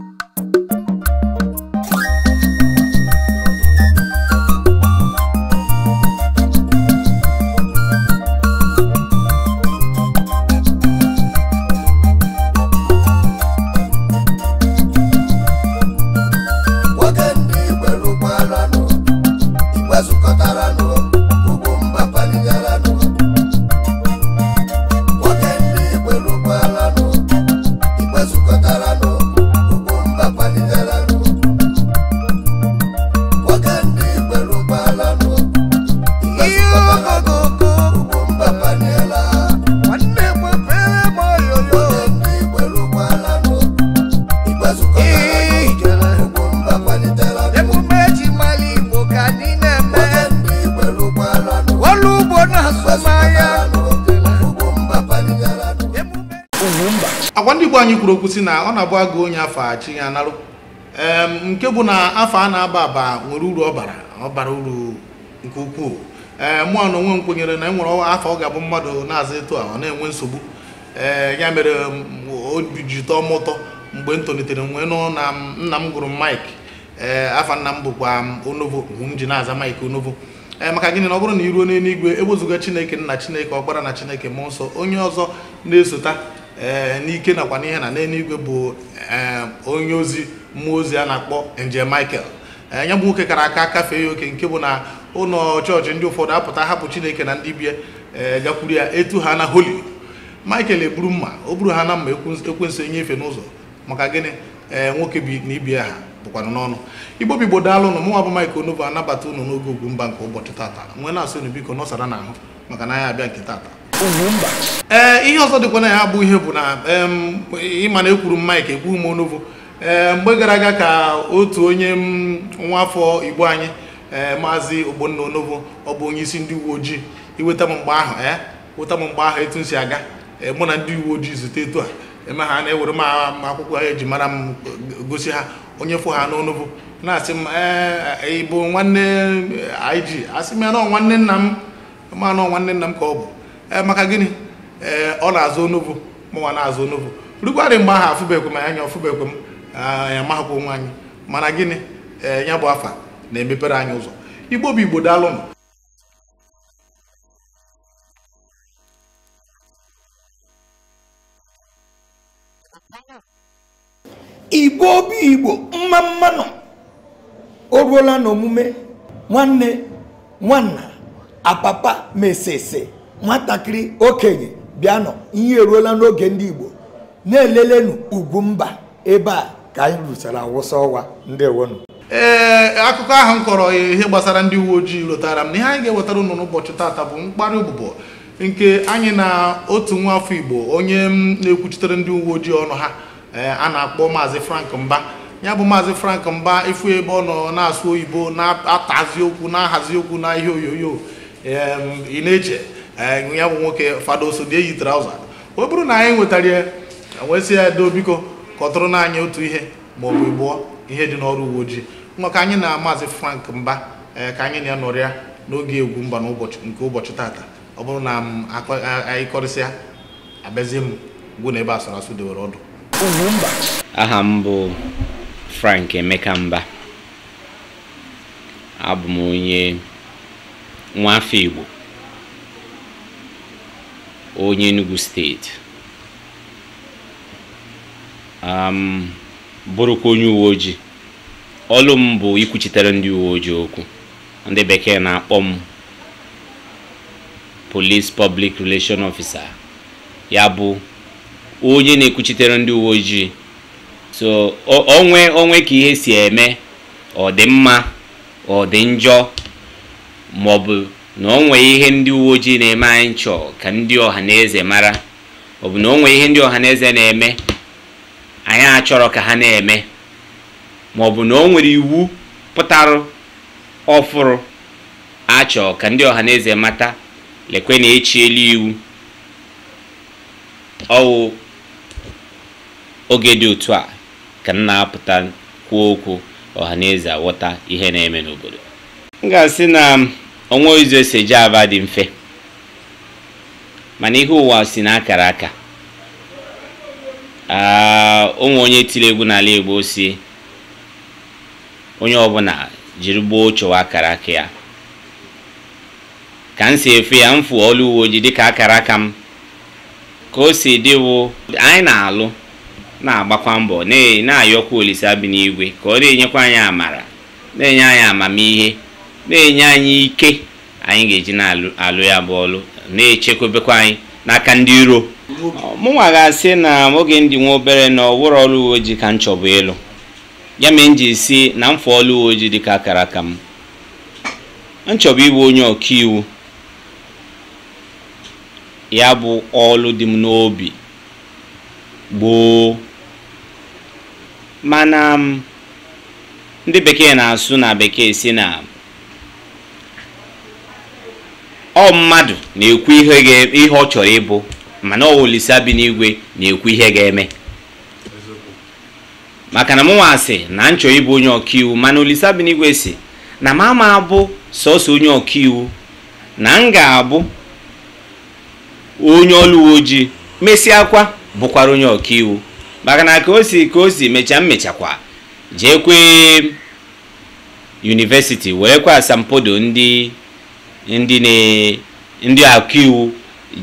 you igbo anyị kwuru okwu si na ọ na-abụ agụ onye afọ achi ya narụ nke bụ na afọ a na-aba aba nwere uru ọ bara ọ bara uru nke ukwuu ee mụọ na onwe m kwenyere na enwere afọ ọ ga-abụ mmadụ na-aza etu a ọ na-enwe nsogbu ee ya mere obi ji tọọ m ụtọ mgbe m tolitere nwee nụ na nna m gụrụ mike ee afa nna m bụkwa onovo m ji na-aza mik onovo ee maka gịnị na ọ bụrụ na iruo n'eluigwe e chineke nna chineke ọkpara na chineke mmụọ nsọ onye ọzọ na-esota ee eh, n'ike nakwa n'ihe na n'eluigwe bụ onye ozi mmụọ ozi a na-akpọ nje michael eh, ya bụ nwoke kara aka kafee ya oke nke bụ na ụlọ chọọchị ndị ụfọdụ apụta hapụ chineke na ndị bie eh, gakwuru ya etu ha na holi michael eburu mma o buru ha na mma ekwensu enyefe n'ụzọ maka gịnị ee nwoke bi na ibia ha bụkwanụ n'ọnụ igbo bigbo daalụ ụnụ mụnwa bụ Mike Onovo anabata ụnụ n'oge ugwu mba nke ụbọchị tata nwee na-asị unu biko nọsara n'ahụ maka na anya abịa nke tata ee eh, ihe ọzọ dịkwa na ya bụ ihe bụ na ịma na ekwuru mike ekwu m onovo ee eh, mgbe gara aga ka otu onye nwa afọ igbo anyị ee eh, maazị ogbonna onovo ọ bụ onye isi ndị uwe ojii iweta m mgbe ahụ ee weta m mgbe ahụ etu m si aga mụ na ndị uwe ojii zute etu a eme ha na-ewere m akwụkwọ ha eji mara m gosi ha onye fụ ha n'onovo na-asị m ịbụ nwanne ig asị m ya na nwanne nna m ma na nwanne nna m ka ọ bụ Eh, maka gịnị eh, ọ na-azụ onovo mụnwa na-azụ onovo rugwarị mgbe ahụ afụbekwe m anya ọfụbekwe m anyị ah, amahakwa onwe anyị mana gịnị ee eh, ya bụ afa na-emepere anyị ụzọ igbo bụ igbo daalụnụ igbo obi igbo mma mma nọ o ruola n'omume nwanne nwanna apapa mesese nwatakịrị okenye bịanụ ihe eruola n'oge ndị Igbo na-elelenu ugwu mba ebe a ka anyị rụchara awụsa ọwa ndị wonu ee akụkọ ahụ m kọrọ ihe gbasara ndị uwe ojii lotara m na ihe anyị ga-ewetara unu n'ụbọchị tata bụ mkparị ụbụbọ nke anyị na otu nwa afọ Igbo onye na-ekwuchitere ndị uwe ojii ọnụ ha a na-akpọ maazị Frank Mba ya bụ maazị Frank Mba ịfụ ebe ọ nọ na-asụ oyibo na-atazi okwu na-ahazi okwu na ihe oyoyo ị na-eche Eh, ya bụ nwoke so dị eyi trauza ọ bụrụ na anyị nwetara ya e nwesị edo biko kọtụrụ na otu ihe ma ọ bụ gbuo ihe dị n'ọrụ uwe ojii ka anyị na maazị frank mba eh, ka anyị na-anọrịa n'oge egwu mba nke ụbọchị tata ọ bụrụ na m anyị kọrịsịa abịazie m mgbu na ebe asụrụ asụ dewere ọdụ aha m bụ frank emeka mba abụ m onye nwa afọ igbo onye Enugu steeti bụrụkwa onye uwe ojii ọlụ m bụ ikwuchitere ndị uwe ojii okwu ndị bekee na-akpọ m police public relation officer ya bụ onye na-ekwuchitere ndị uwe ojii so onwe onwe ka ihe si eme ọ dị mma ọ dị njọ maọbụ na o nwee ihe ndị uwe ojii na-eme anyị chọọ ka ndị ọha na eze mara ọ bụ na o nwee ihe ndị ọha na eze na-eme anyị achọrọ ka ha na-eme ma ọ bụ na o nwere iwu pụtara ọfụrụ achọọ ka ndị ọha na eze mata lekwe na echiela iwu ọwụ oge dị otu a ka m na-apụta kwuo okwu ọha na eze awọta ihe na-eme n'obodo m ga-asị na onwe ụzọ esi eji aba dị mfe mana ihe ụwa si na akara aka ụmụ ah, onye tiri egwu n'ala Igbo si onye ọbụla jiri gboo chọwa akara aka ya ka m si efe ya m fụ ọlụ uwe ojii dịka akara aka m ka o si dịwo anyị na-alụ na-agbakwa mbọ na-ayọkwa olise bi n'igwe ka ọ na-enyekwa anyị amara na-enye anyị amamihe na-enye anyị ike anyị ga-eji na-alụ ya bụ ọlụ na-echekwebekwa anyị n'aka ndị iro mụnwa ga-asị na oge ndị nwa obere na ọwụrụ ọlụ uwe ojii ka m chọbụ ịlụ ya mere m ji si na mfe ọlụ uwe ojii dị ka akara aka m m chọbụ ịbụ onye ọkaiwu ya bụ ọlụ dị m n'obi gboo mana ndị bekee na-asụ na bekee si na ọ mmadụ na-ekwu ihe ọ chọrọ ịbụ mana ọ Olisa na-ekwu ihe ga-eme maka na mụnwa asị na m chọrọ ịbụ onye ọkaiwu mana Olisa bi si na m ama abụ sọsọ onye iwu na m ga-abụ onye ọrụ uwe ojii mesịakwa bụkwara onye ọkaiwu maka na ka o si ka o si mecha mmechakwa jeekwe yunivesiti werekwa asampodo ndị ndị ndị ọkaiwu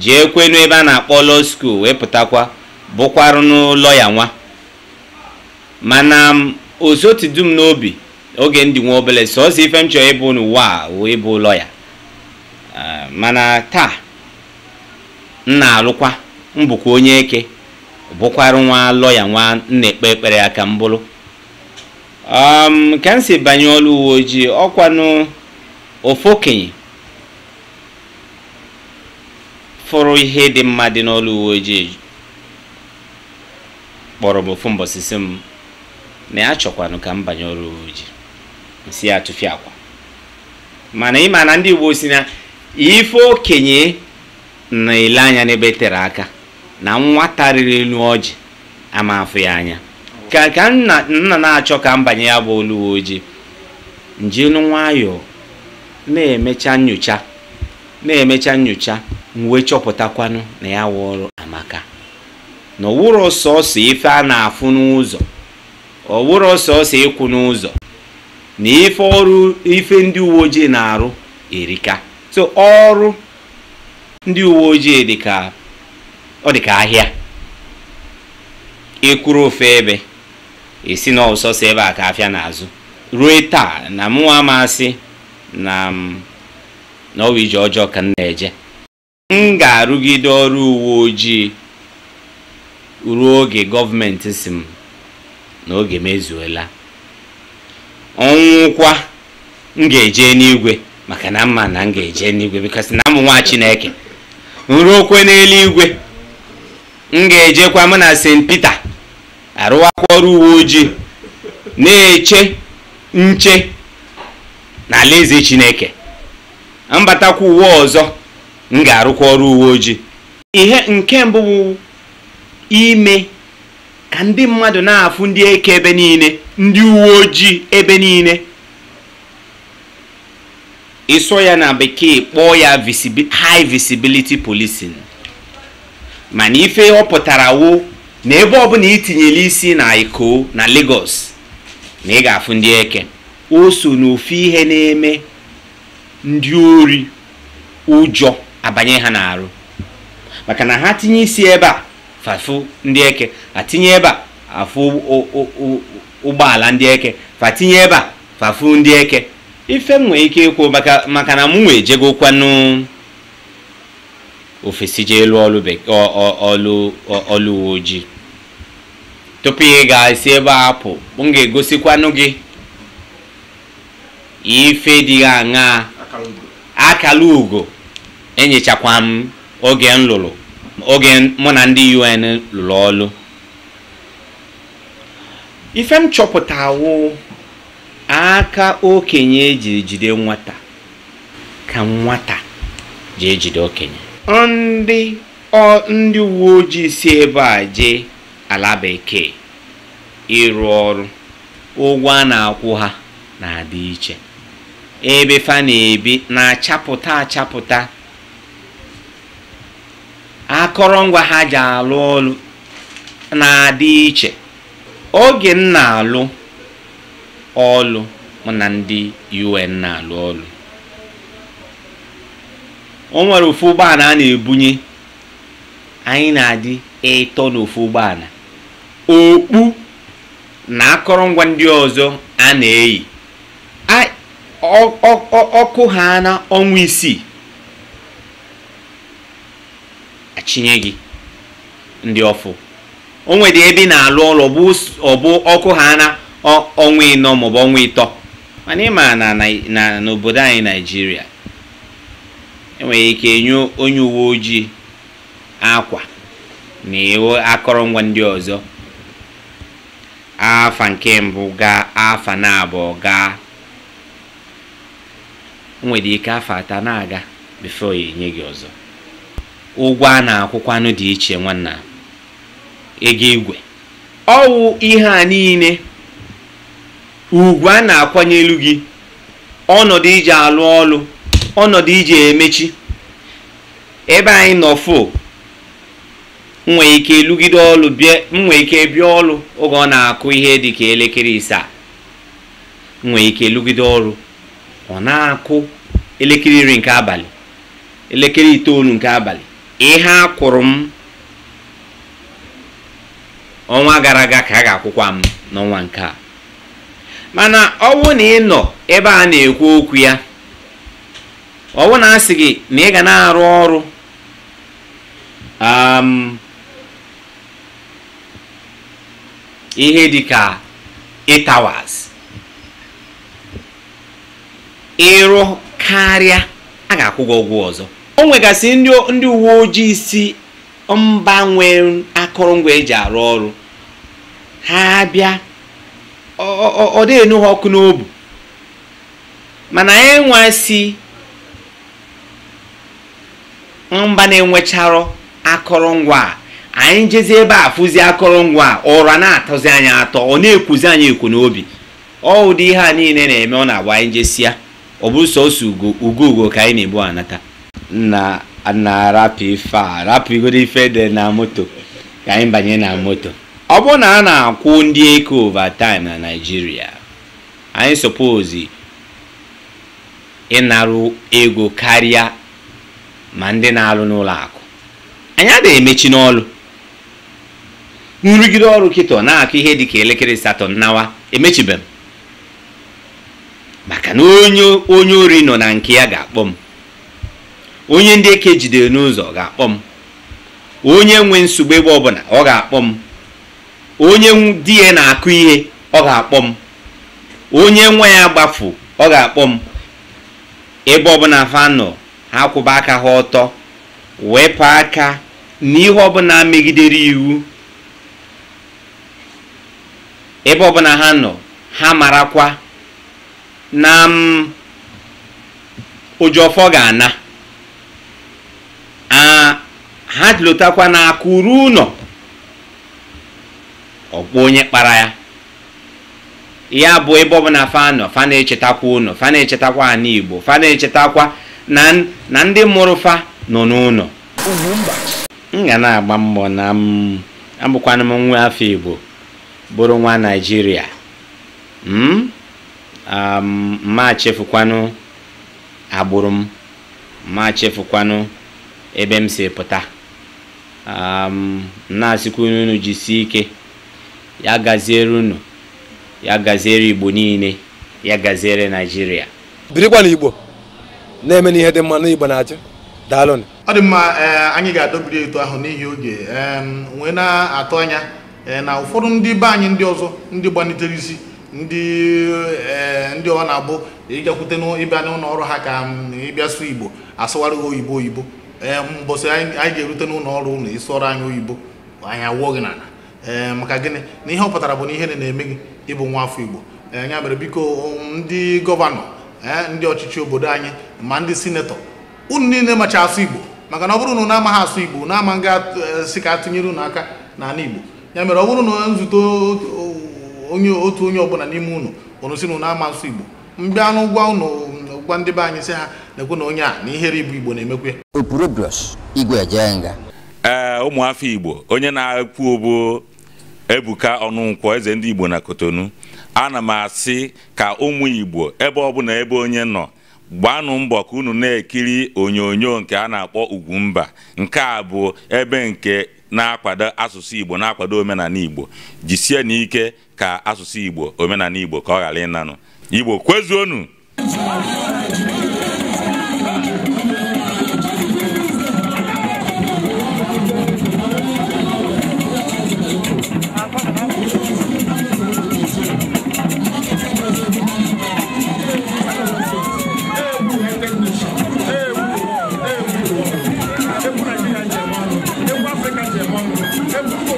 jee kwenu ebe a na-akpọ lọ school wee pụtakwa bụkwarụ n'ụlọ ya nwa mana dum n'obi oge ndị nwa obele sọọsọ ife m chọrọ ịbụ n'ụwa a wee ịbụ ụlọ ya mana taa m na-alụkwa mbụkwa onye eke bụkwara nwa lọya nwa na-ekpe ekpere aka m bụrụ ka m si banye ọrụ uwe ojii ọkwanụ ofu okenye fụrụ ihe dị mma dị n'ọlụ uwe ojii kpọrọ m ofu mbọsị si m na ya chọkwanụ ka m banye uwe ojii si ya akwa mana ịma na ndị Igbo si na ife okenye na-ele anya n'ebe tere aka na nwa riri elu ọjị ama afụ ya anya ka ka nna na-achọ ka m banye ya bụ olu ojii nje nwayọọ na-emecha nyocha na-emecha nyocha m wee chọpụtakwanụ na ya wụrụ amaka na ọwụrụ sọsọ ife a na-afụ n'ụzọ ọwụrụ sọsọ ịkwụ n'ụzọ na ife ọrụ ife ndị uwe ojii na-arụ erika so ọrụ ndị uwe ojii dịka ọ dịka ahịa ịkwụrụ ofe ebe esi na ọsọsọ ebe a ka afịa n'azụ ruo taa na mụnwa masị na na ije ọjọọ ka m na-eje m ga-arụgide ọrụ uwe ojii ruo oge gọọmenti si m na oge mezuola ọnwụkwa m ga-eje n'igwe maka na mma na m ga-eje n'igwe bikos na m nwa chineke nruokwe n'eluigwe m ga-ejekwa m na st peter arụwakwa ọrụ uwe ojii na-eche nche na Alaeze chineke mbatakwa uwe ọzọ m ga-arụkwa ọrụ uwe ojii ihe nke mbụ bụ ime ka ndị mmadụ na-afụ ndị eke ebe niile ndị uwe ojii ebe niile ịsọ ya na bekee kpọọ ya high visibility policing mana ife ọ pụtara wo na ebe ọbụla itinyere isi na Iko na Lagos na ị ga-afụ ndị eke o so n'ofu ihe na-eme ndị ori ụjọ abanye ha n'arụ maka na ha tinye isi ebe a fafu ndị eke atinye ebe a afụ ụgbọala ndị eke tinye ebe a fafu ndị eke ife m nwere ike ịkwụ maka na mụ nwee ejego ofesi jee ọlụ uwe ojii tupu ị ga-esi ebe a pụ m ga-egosikwanụ gị ife dị aṅaa akala ugo enyechakwa m oge oge mụ na ndị un lụrụ ọlụ ife m chọpụtawo aka okenye ejiri jide nwata ka nwata ji ejide okenye ndị ọ uwe ojii si ebe a jee ala bekee ịrụ ọrụ ụgwọ a na-akwụ ha na-adị iche ebe fa na-ebi na-achapụta achapụta akọrọngwa ha ji alụ ọlụ na-adị iche oge m na-alụ ọlụ na ndị un na-alụ ọlụ o nwere ofu ụgbọala a na-ebunye anyị na-adị ịtọ n'ofu ụgbọala okpu na akọrọngwa ndị ọzọ a na-eyi ọkụ ha na ọnwa isii achịnye ndị ọfụ o nwere ebe ị na-alụ ụlọ ọbụ ọkụ ha na ọnwa ịnọ maọbụ ọnwa ịtọ mana ị ma na n'obodo anyị naijiria enwere ike enye onye uwe ojii akwa na iwe akọrọngwa ndị ọzọ afa nke mbụ gaa afa na abụọ gaa nwere ike afa atọ na-aga bifo ya enye gị ọzọ ụgwọ a na-akwụkwanụ dị iche nwanna ego igwe ọwụ ihe a niile ugwu a na-akwanyelu gị ọnọdụ iji alụ ọlụ ọnọdụ iji emechi ebe anyị nọ fo nwee ike lụgide ọlụ nwee ike bịa ọlụ oge ọ na-akụ ihe dị ka elekere isaa nwee ike lụgide ọrụ ọ na-akụ elekere iri nke abalị elekere itoolu nke abalị ihe a kwụrụ m ọnwa gara aga ka a ga-akwụkwa m n'ọnwa nke a mana ọwụ na ị nọ ebe a na-ekwu okwu ya ọwụ na asị gị na ị ga na-arụ ọrụ um, ihe dịka ka ịrụ karịa a ga-akwụ gị ụgwọ ọzọ o nwegasị ndị uwe ojii si mba nwere akụrụngwa eji arụ ọrụ ha bịa ọ dịghị nụ ha ọkụ n'obu mana anyị e nwa si mba na-enwecharọ akụrụngwa anyị jezi ebe a fụzi akụrụngwa ụra na-atọzi anyị atọ ọ na-ekwuzi anyị ekwu n'obi ọ ụdị ihe a niile na-eme ọ na-agba anyị jesia ọ bụrụ sọsọ ugo ugo ka anyị na-ebu anata na na-arapụ ife a rapụgoro ife dị na moto ka anyị banye na moto ọ bụrụ na a na-akwụ ndị eke overtime na Naịjirịa anyị suppose ịnarụ ego karịa ma ndị na-alụ n'ụlọ akụ anyị adịghị emechi n'ọlụ nrụgide ọrụ kịtọ na-akụ ihe dị ka elekere satọ nawa emechibe m maka na onye ori nọ na nke ya ga-akpọ m onye ndị eke jidere n'ụzọ ga-akpọ m onye nwe nsogbu ebe ọbụla ọ ga-akpọ m onye di ya na-akụ ihe ọ ga-akpọ m onye nwa ya gbafu ọ ga-akpọ m ebe ọbụla fa nọ ha kwụba aka ha ọtọ wepụ aka n'ihe ọbụla megidere iwu ebe ọbụla ha nọ ha marakwa na m ụjọfọ ga-ana ajụlụtakwa na ụnọ ụlọ ọkpọ onye kpara ya ya bụ ebe ọbụla fanọ fano na-echetakwa ụnọ fa na-echetakwa ana igbo fa na-echetakwa na ndị mụrụ fa nọ n'ụlọ m ga na-agba mbọ na m abụkwana nwa afọ igbo bụrụ nwa naijiria ma hmm? chefukwanụ agbụrụ m ma chefukwanụ ebe m si pụta na-asịkwa unu jisie ike ya gaziere unu ya gaziere igbo niile ya gaziere naijiria birikwa na igbo na-eme n'ihe dị mma na na-achị daalụ ọ dị mma e, anyị ga-adọbiri etu ahụ n'ihi oge wee na-atụ anya e, na ụfọdụ ndị be anyị ndị ọzọ ndị gbanitere isi ndị e, ndị ọ na-abụ ịgakwute n'ịbịa n'ụlọ ọrụ ha ka ịbịa sụ igbo asụwara oyibo oyibo Eh, mbọsị anyị ga-erute n'ụlọ ọrụ ụlọ isi ọrụ anyị oyibo anyị awụọ gị n'ala ee eh, maka gịnị na ihe ọ pụtara bụ na ihe na-eme gị ịbụ nwa afọ igbo eh, ya mere biko um, ndị gọvanọ ndị ọchịchị obodo anyị ma ndị sinetọ unu niile macha asụ igbo maka na ọ bụrụ na unu amaghị asụ igbo na ama ngasị ka atụnyere ụnụ aka n'ala igbo ya mere ọ bụrụ na nzute onye otu onye ọbụla n'ime ụnụ unu si na unu ama asụ igbo mbịa n'ụgwọ gwụkwa ndị be anyị ha na-ekwu na onye a na ihere ibu igbo na-emekwe nga ee ụmụafọ igbo onye na-ekwu bụ ebuka ọnụnkwọ eze ndị igbo na kotonu ana m asị ka ụmụ igbo ebe ọbụla ebe onye nọ gbanụ mbọ ka unu na-ekiri onyonyo nke a na-akpọ Ugwumba nke a bụ ebe nke na-akwado asụsụ Igbo na-akwado omenala Igbo jisie n'ike ka asụsụ Igbo omenala Igbo ka ọ ghara ịnanụ Igbo kwezuonu Africa, Africa, Africa, Africa,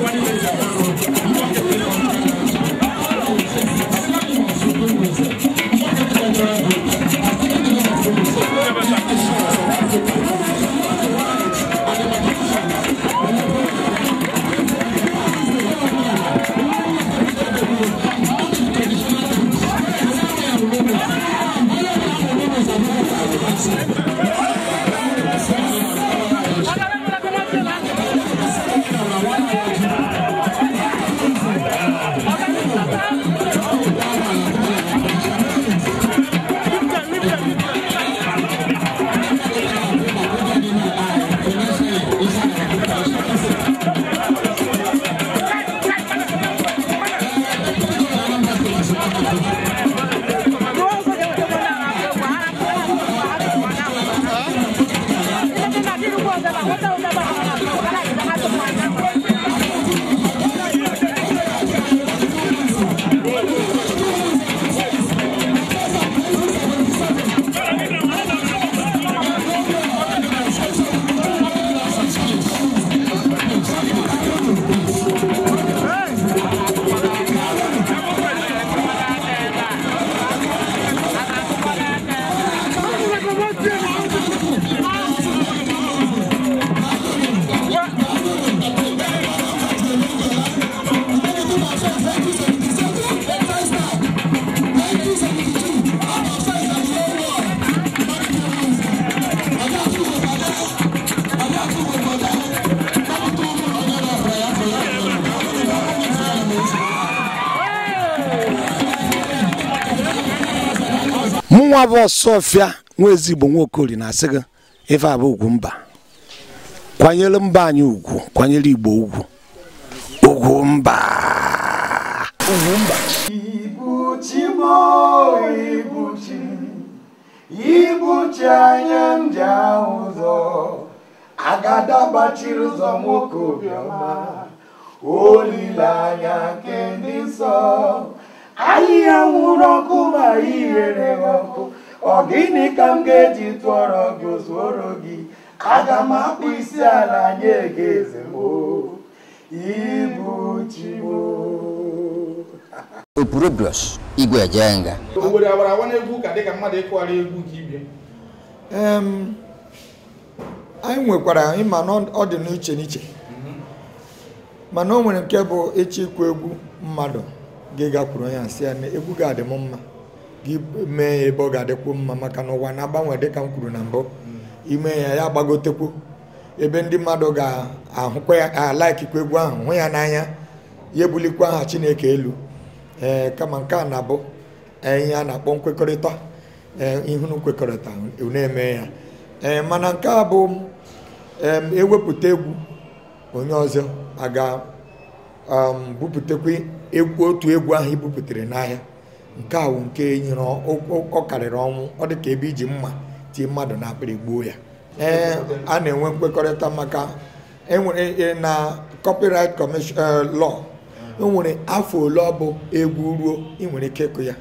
abụ ọsọfịa nwa ezigbo nwaokori na-asị gị ife abụ ugwu mba kwanyere mba anyị ugwu kwanyere igbo ugwu ugwu mba ugwu mba ibuchi anya ndị ahụ ụzọ agadabachiri ụzọ nwoke obiọma olileanya nke ndị nsọ ahịhịa nwụrụ ọkụ ma ihere ọkụ ọ gịnị ka m ga-eji tụọrọ gị ozuoro gị aga m akpụ isi ala nye gị eze ibu chibo opurobios igwe ejenga obodo agbara awa n'egwu ụka dịka mmadụ ịkụgharị egwu ka ibie anyị nwekwara ịma na ọ dị n'iche n'iche mana o nwere nke bụ ịchịkwa egwu mmadụ ga gakwuru ya sị ya na egwu ga-adị m mma gị mee ebe ọ ga-adịkwu mma maka na ụwa na-agbanwe dịka m kwuru na mbụ ime ya ya gbagotekwu ebe ndị mmadụ ga-ahụkwa ya alaikikwa egwu ahụ hụ ya n'anya ya ebulikwa aha Chineke elu ee eh, kama nke a na-abụ eh, ihe a na-akpọ nkwekọrịta ee eh, ihunu kwekọrịta na-eme ya ee mana nke a bụ ewepụta egwu onye ọzọ aga bupụtakwa otu egwu ahụ i bupụtara n'ahịa nke a awụ nke nyere ọ karịrị ọnwụ ọ dị ka ebe iji mma tie mmadụ na akpịrị gbuo ya ee a na-enwe nkwekọrịta maka enwere e, na copyright commission eh, lọ enwere afọ ole ọ bụ egwu ruo ị nwere ike ịkụ ya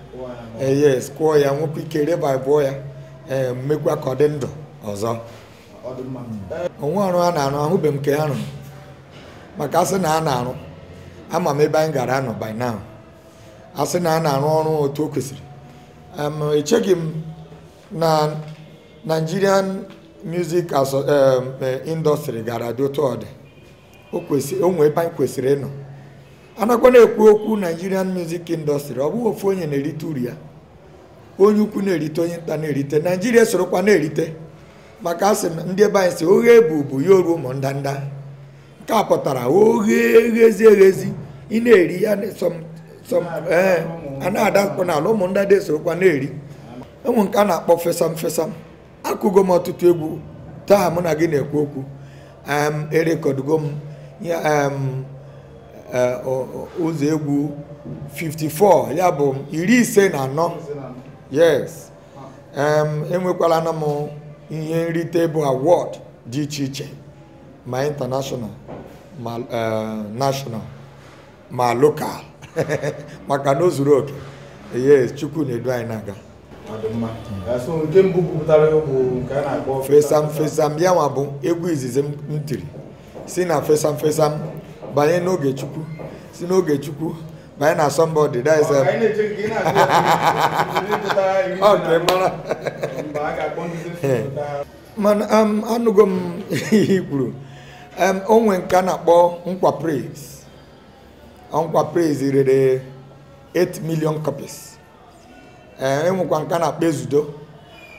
eh, yes kwụọ ya nwekwa ike revivụọ ya ee eh, mmekwa ka ọ dị ndụ ọzọ onwe ọrụ a na-arụ ahụbeghị m nke ha rụrụ maka asị na a na-arụ ama m ebe anyị gara anọ by now asị na a na-arụ ọrụ otu o kwesịrị echeghị m na Nigerian music as e, industry gara dị otu ọ dị o nwee ebe anyị kwesịrị ịnọ anakwa na-ekwu okwu Nigerian music industry ọ bụghị ofu onye na-erite uru ya onye ukwu na-erite onye nta na-erite Naijiria sorokwa na-erite maka asị m ndị ebe anyị si oghe bụbu ya oru ụmụ ndanda nke a pụtara oghe eghezi eghezi ị na-eri ya ee eh, na ala dị esorokwa na-eri ụmụ nke a na-akpọ fesam fesam akụgo m ọtụtụ egwu taa mụ na gị na-ekwu okwu erekọdugo m ụzọ egwu 54 ya bụ iri ise na anọ yes enwekwala e na m ihe nrite bụ awọd dị iche iche ma ịntanashọnal ma eh, national ma lokal. maka na o zuru oke yes chukwu na-edu anyị na akpọ fesam fesam ya nwa bụ egwu izizi m tiri si na fesam fesam banye n'oge chukwu si n'oge chukwu banye na somebody that is okay mara mana um, anụgo m ihe um, onwe nke a na-akpọ nkwa nkwa praise rere 8 million copies eh, enwekwa nke na-akpa ezudo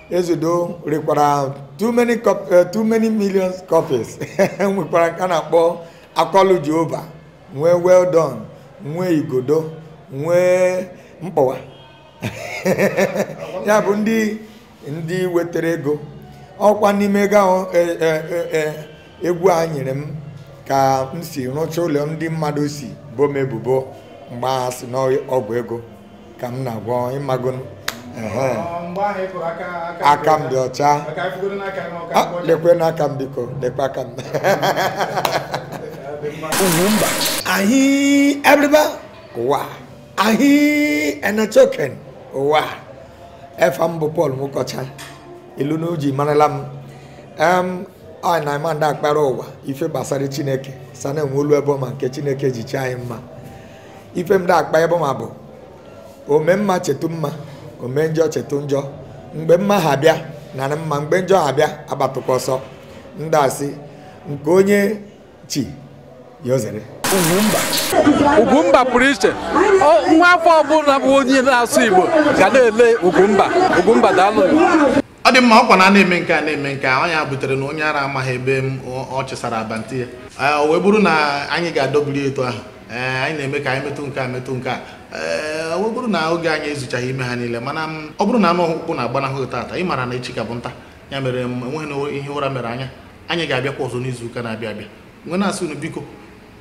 ezudo rekwara too many eh, millions copies enwekwara nke na-akpọ akọlụ jehova nwee well done nwee igodo nwee mkpọwa ya bụ ndị ndị wetara ego ọkwa n'ime ego ahụ e, e, e, egwu a nyere m ka m si rụchaa ụlọ ndị mmadụ si boo m ebubo mgbe agha si n'ọgwụ ego ka m na-agwọ ịmago aka m dị ọcha lekwe n'aka m biko lekwe aka m Ugwumba ahị Ebriba ụwa ahị Enechoken ụwa efa m bụ Paul Mukocha ilu na marala m em ọ na-ama akpara ụwa ife gbasara Chineke sana enwe olu ebọma nke chineke ji chi anyị mma ife m da-akpa ebọma bụ ome mma chetu mma ome njọ chetu njọ mgbe mma ha bịa narị mma mgbe njọ ha bịa agbatụkwa ọsọ ndị asị nke onye chi ya ozere Ugwumba pụrụ iche nwa afọ ọbụla bụ onye na-asụ Igbo ga na-ele Ugwumba Ugwumba daalụ ọ dị mma ọkwa na a eme nke a na-eme nke a ọnya butere na onye ara amaghị ebe m ọ chịsara abanti ya Ah, o wee bụrụ na anyị ga-adọbiri eto ahụ eh, anyị na-eme ka anyị metụ nke a metụ nke a eh, ee bụrụ na oge anyị ezuchaghị ime ha niile mana ọ bụrụ na anụ ọkpụkpụ na-agbanahụ taata ị mara na echi ka bụ nta ya mere enweghị ihe ụra mere anya anyị ga-abịakwa ọzọ n'izu ụka na-abịa abịa nwe na-asị unu biko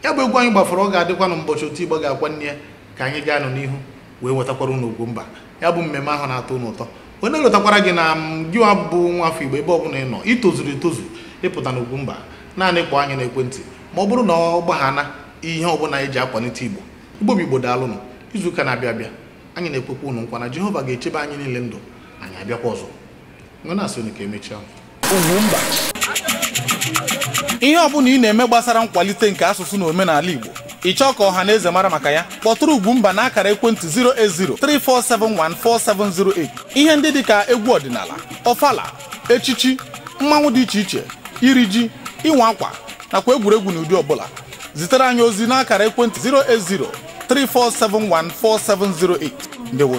ya bụ egwu anyị gbafọrọ ọ ga-adịkwa na ụbọchị otu igbo ga-akwa nne ya ka anyị gaa nọ n'ihu wee nwetakwara unu ugwu mba ya bụ mmemme ahụ na-atọ unu ụtọ onye lọtakwara gị na gị bụ nwa afọ igbo ebe ọ bụla ị nọ itozuru etozu ịpụta na mba naanị kpọọ anyị n'ekwentị ma ọ bụrụ na ọ gbaghana ihe ọbụla anyị e ji akwalite igbo igbo bụ igbo daalụnụ izu ụka na-abịa abịa anyị na-ekwekwa ụnụ nkwa na jehova ga-echebe anyị niile ndụ anyị abịakwa ọzọ nọ asị ka emechaa ihe ọbụla ị na-eme gbasara nkwalite nke asụsụ na omenala igbo ị chọọ ka ọha na eze mara maka ya kpọtụrụ Ugwumba na akara ekwentị 08034714708 ihe ndị dị ka egwu ọdịnala ọfala echichi mmanwụ dị iche iche iri ji ịnwa akwa nakwa egwuregwu n'ụdị ọbụla zitere anyị ozi n'akara ekwentị 080 34714708 ndewo